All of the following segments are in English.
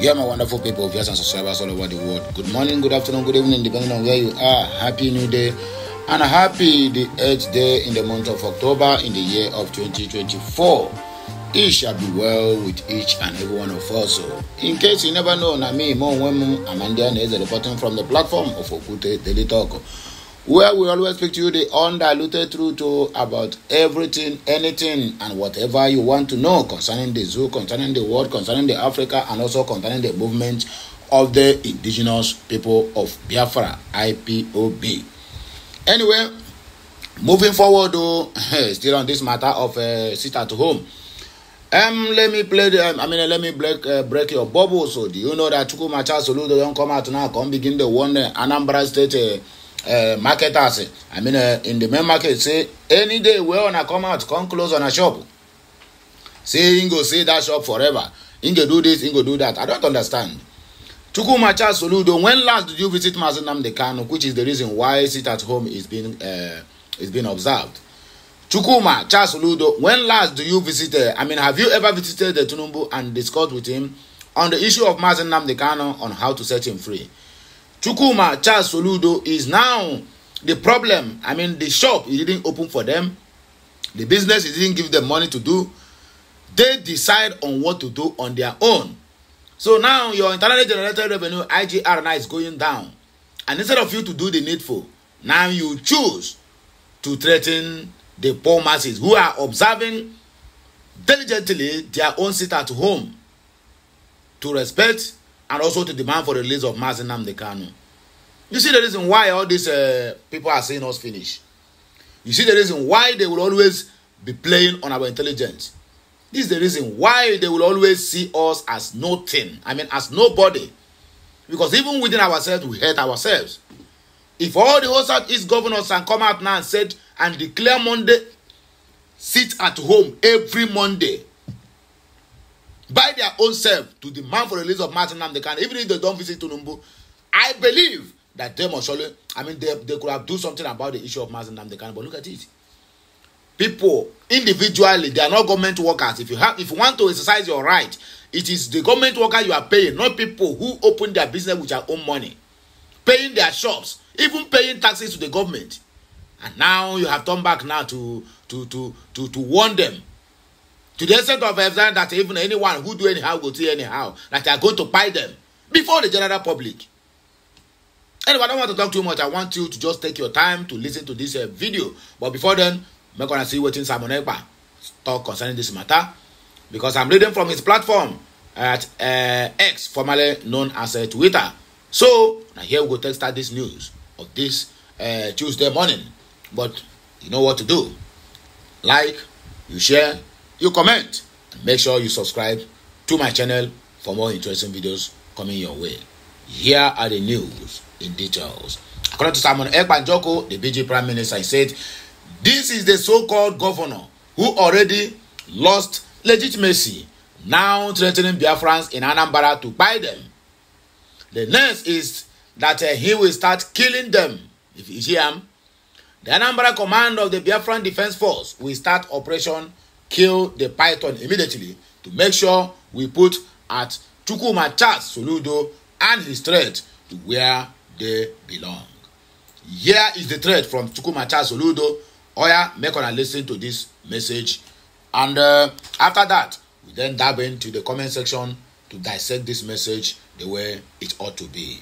Yeah, my wonderful people, viewers and subscribers all over the world. Good morning, good afternoon, good evening, depending on where you are. Happy New Day and a happy the 8th day in the month of October in the year of 2024. It shall be well with each and every one of us. So, in case you never know, Nami Mo Wemu Amanda is reporting from the platform of Okute Daily Talk. where we always speak to you the undiluted truth to about everything, anything, and whatever you want to know concerning the zoo, concerning the world, concerning the Africa, and also concerning the movement of the indigenous people of Biafra, IPOB. Anyway, moving forward, though, oh, still on this matter of uh, sit at home. Um, let me play the, um, I mean, uh, let me break, uh, break your bubble. So, do you know that Chukwumacha Soludo don't come out now, come begin the one uh, Anambra State uh, uh, marketers. I mean, uh, in the main market, say any day where wanna come out, come close on a shop. Say Ingo, say that shop forever. Ingo do this, Ingo do that. I don't understand. Chukwumacha Soludo, when last did you visit Mazinam Kano, which is the reason why sit at home is being uh, is being observed? Chukuma Charles Oludo, when last do you visit? Uh, I mean, have you ever visited the Tunumbu and discussed with him on the issue of Mazen Namdekano on how to set him free? Chukuma Charles Soludo is now the problem. I mean, the shop it didn't open for them, the business it didn't give them money to do. They decide on what to do on their own. So now your internally generated revenue IGR now is going down, and instead of you to do the needful, now you choose to threaten the poor masses who are observing diligently their own sit at home to respect and also to demand for the release of Mazin Namdekanu. You see the reason why all these uh, people are seeing us finish. You see the reason why they will always be playing on our intelligence. This is the reason why they will always see us as nothing. I mean, as nobody. Because even within ourselves, we hate ourselves. If all the whole Southeast governors can come out now and said and declare Monday, sit at home every Monday by their own self to demand for the release of Martin Namdekan, even if they don't visit Tunumbu. I believe that they must surely, I mean, they, they could have do something about the issue of Martin Namdekan, but look at it. People individually, they are not government workers. If you have, if you want to exercise your right, it is the government worker you are paying, not people who open their business with their own money, paying their shops, even paying taxes to the government. And now you have turned back now to to to to to warn them To the extent of extent that even anyone who do anyhow will see anyhow, that they are going to buy them before the general public. Anyway, I don't want to talk too much. I want you to just take your time to listen to this uh, video. But before then, I'm going to see what Simon Ekpa talk concerning this matter. Because I'm reading from his platform at uh, X, formerly known as uh, Twitter. So, now here we go take start this news of this uh, Tuesday morning. But you know what to do. Like, you share, you comment, and make sure you subscribe to my channel for more interesting videos coming your way. Here are the news in details. According to Simon Ekpanjoko, the BG Prime Minister, he said, This is the so called governor who already lost legitimacy, now threatening Biafrans in Anambra to buy them. The next is that uh, he will start killing them. If you hear him, the Anambra command of the Biafran Defense Force will start Operation kill the python immediately to make sure we put at Charles Soludo and his threat to where they belong. Here is the threat from Charles Soludo. Oya, make una listen to this message. And uh, after that, we then dive into the comment section to dissect this message the way it ought to be.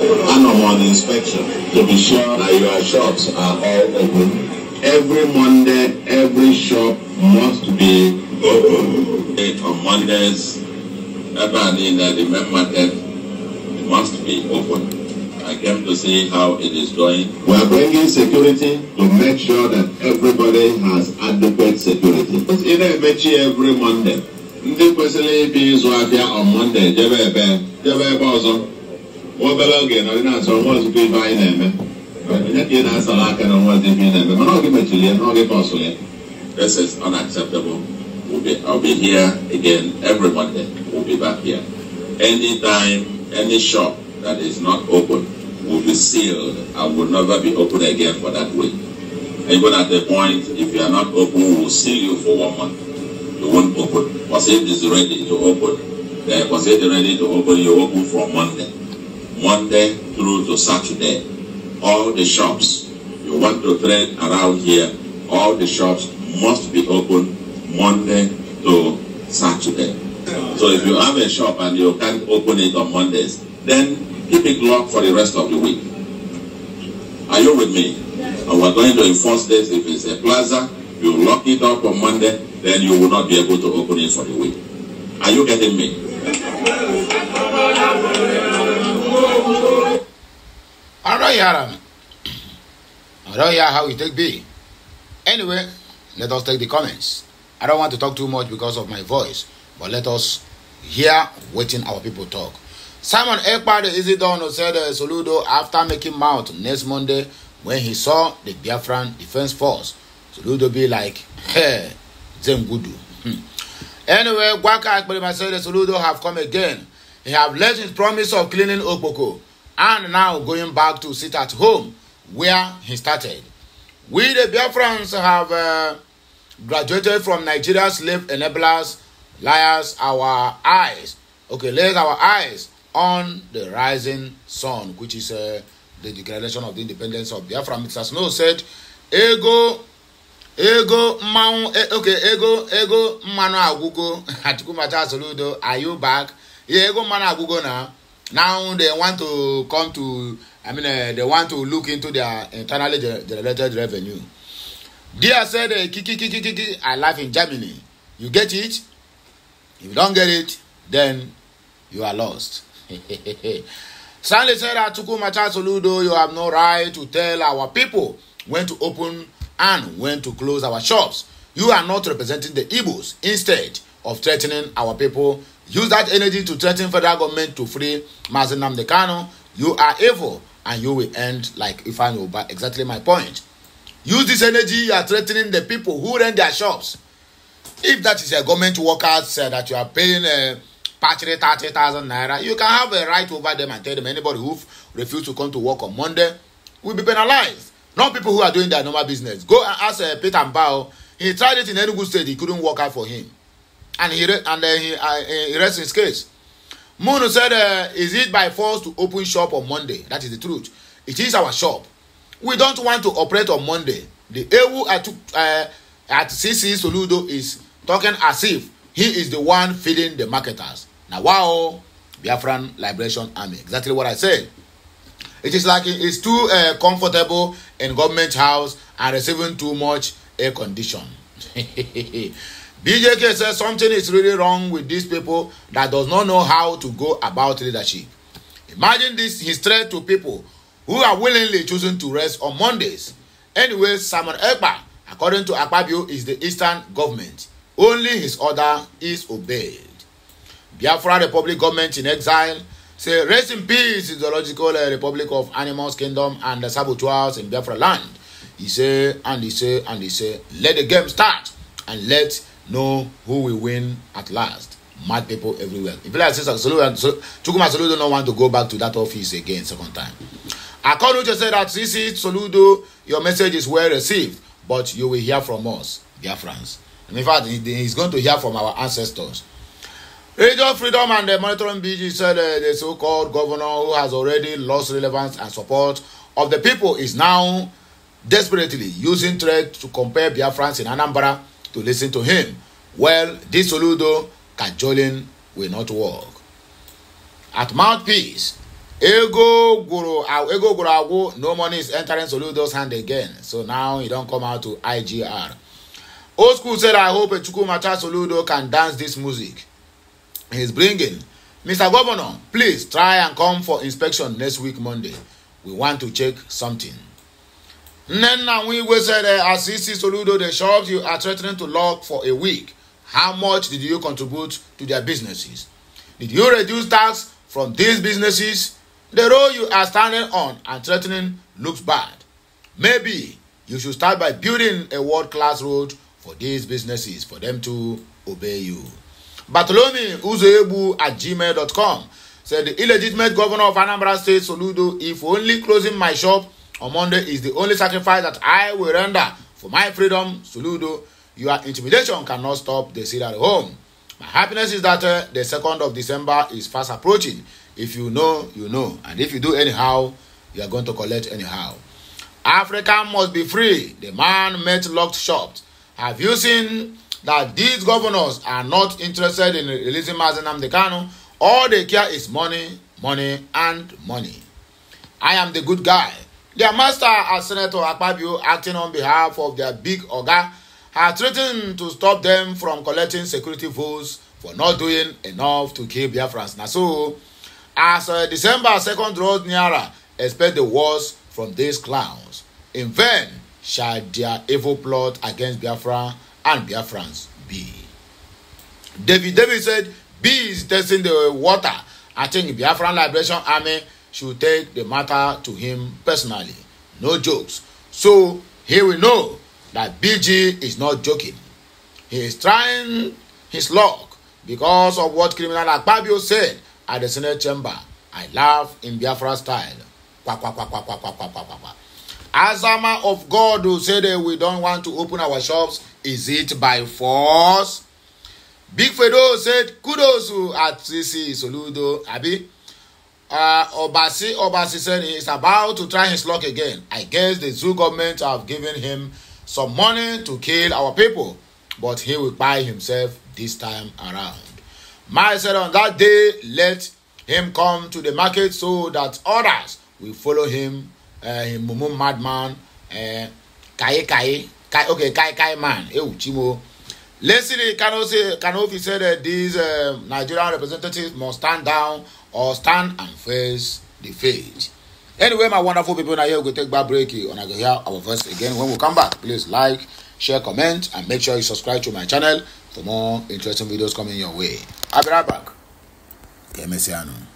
And I'm on inspection to be sure that your shops are all open. Every Monday, every shop must be open on Mondays. Ebani that the main market must be open. I came to see how it is going. We are bringing security to make sure that everybody has adequate security. Ị na-emechi every Monday. Ndị kwesịrị ịbịa ịzụ ahịa on Monday jebe ebe jebe ebe ọzọ. Obere oge nọrị na-achọ nwa ozugbo ibe anyị na-eme. Onye ka ị na-asara aka na nwa ozugbo ị na-eme mana ọ gị mechiri ya na ọ gị kọsụrụ ya. This is unacceptable. We'll be, I'll be here again every Monday. We'll be back here. Anytime, any shop that is not open will be sealed and will never be open again for that week. Even at the point, if you are not open, we will seal you for one month. You won't open. Was it is ready to open? Then eh, was it ready to open? You open from Monday. Monday through to Saturday. All the shops you want to trade around here, all the shops must be open Monday to Saturday. So if you have a shop and you can't open it on Mondays, then keep it locked for the rest of the week. Are you with me? And we're going to enforce this. If it's a plaza, you lock it up on Monday, then you will not be able to open it for the week. Are you getting me? All right, Adam. I don't know how it take be. Anyway, Let us take the comments. I don't want to talk too much because of my voice, but let us hear waiting our people talk. Simon Ekpade Isidono said uh, Soludo after making mouth next Monday when he saw the Biafran Defense Force. Soludo be like, hey, Zemgudu. Hmm. Anyway, Gwaka Akpelema said Soludo have come again. He have left his promise of cleaning Okpoko and now going back to sit at home where he started. We the Biafrans have uh, graduated from Nigeria slave enablers, liars our eyes. Okay, let our eyes on the rising sun, which is uh, the declaration of the independence of Biafra. Mr. Snow said, Ego, ego, mmanwụ, e, okay, ego, ego, mmanụ agwụgo, Atikumata Soludo, are you back? Yeah, ego mmanụ agwụgo na now they want to come to, I mean, uh, they want to look into their internally generated revenue. Dia said, kiki, eh, kiki, kiki, I live in Germany. You get it? If you don't get it, then you are lost. Stanley said, Atuku Matasoludo, you have no right to tell our people when to open and when to close our shops. You are not representing the Igbos. Instead of threatening our people, use that energy to threaten federal government to free Mazen Namdekano. You are evil and you will end like Ifan Oba. Exactly my point use this energy you are threatening the people who rent their shops if that is a government workers uh, that you are paying uh, partially 30,000 naira you can have a right over them and tell them anybody who refuse to come to work on monday will be penalized not people who are doing their normal business go and ask uh, peter mbao he tried it in enugu state he couldn't work out for him and he re- and then he, uh, he rests his case munu said uh, is it by force to open shop on monday that is the truth it is our shop we don't want to operate on monday the ewu at uh, at cc soludo is talking as if he is the one feeding the marketers na wow biafran liberation army exactly what i said it is like he is too uh, comfortable in government house and receiving too much air condition. BJK says something is really wrong with these people that does not know how to go about leadership. Imagine this, his threat to people who are willingly choosing to rest on Mondays. Anyway, Simon Ekpa, according to Akpabio, is the eastern government. Only his order is obeyed. Biafra Republic government in exile say rest in peace in zoological uh, republic of animals kingdom and the saboteurs in Biafra land. He say and he say and he say let the game start and let know who will win at last. Mad people everywhere. If like Sister Solu and Chukuma Solu don't want to go back to that office again second time. According to say that CC Soludo, your message is well received, but you will hear from us, dear friends. And in fact, he's going to hear from our ancestors. Radio Freedom and the Monitoring BG said uh, the so called governor who has already lost relevance and support of the people is now desperately using threat to compare Biafrans in Anambra to listen to him. Well, this Soludo cajoling will not work. At mouthpiece, ego gwụrụ ego gwụrụ agwụ no money is entering soludo's hand again so now he don come out to igr old school said i hope chukwumacha soludo can dance this music he's bringing mr governor please try and come for inspection next week monday we want to check something nnenna nwigwe said eh, as he soludo the shops you are threatening to lock for a week how much did you contribute to their businesses did you reduce tax from these businesses The road you are standing on and threatening looks bad. Maybe you should start by building a world class road for these businesses for them to obey you. Bartolome Uzoebu at gmail.com said the illegitimate governor of Anambra State, Soludo, if only closing my shop on Monday is the only sacrifice that I will render for my freedom, Soludo, your intimidation cannot stop the seed at home. My happiness is that uh, the 2nd of December is fast approaching. If you know, you know. And if you do anyhow, you are going to collect anyhow. Africa must be free. The man met locked shop. Have you seen that these governors are not interested in releasing Mazenam Dekano? All they care is money, money, and money. I am the good guy. Their master, as Senator Akpabio, acting on behalf of their big Oga, has threatened to stop them from collecting security votes for not doing enough to keep Biafrans. Now, so As uh, December second nd draws nearer, expect the worst from these clowns. In vain shall their evil plot against Biafra and Biafrans be. David David said, Bees testing the water. I think Biafran Liberation Army should take the matter to him personally. No jokes. So he will know that BG is not joking. He is trying his luck because of what criminal Akpabio said at the Senate chamber. I laugh in Biafra style. Quack, quack, quack, quack, quack, quack, quack, quack, quack. Azama of God who said that we don't want to open our shops, is it by force? Big Fedo said, kudos to Atsisi Soludo Abi. Uh, Obasi Obasi said he's about to try his luck again. I guess the zoo government have given him some money to kill our people, but he will buy himself this time around. My said, On that day, let him come to the market so that others will follow him, uh, him mumu madman, uh, kai kai, okay, kai kai man, Ewu chimo. eh, uchimo. Leslie Kanofi, Kanofi said that these uh, Nigerian representatives must stand down or stand and face the fate. Anyway, my wonderful people, now here we take back break and I go hear our voice again. When we come back, please like, share, comment, and make sure you subscribe to my channel for more interesting videos coming your way. abịara back ka emesịa nụ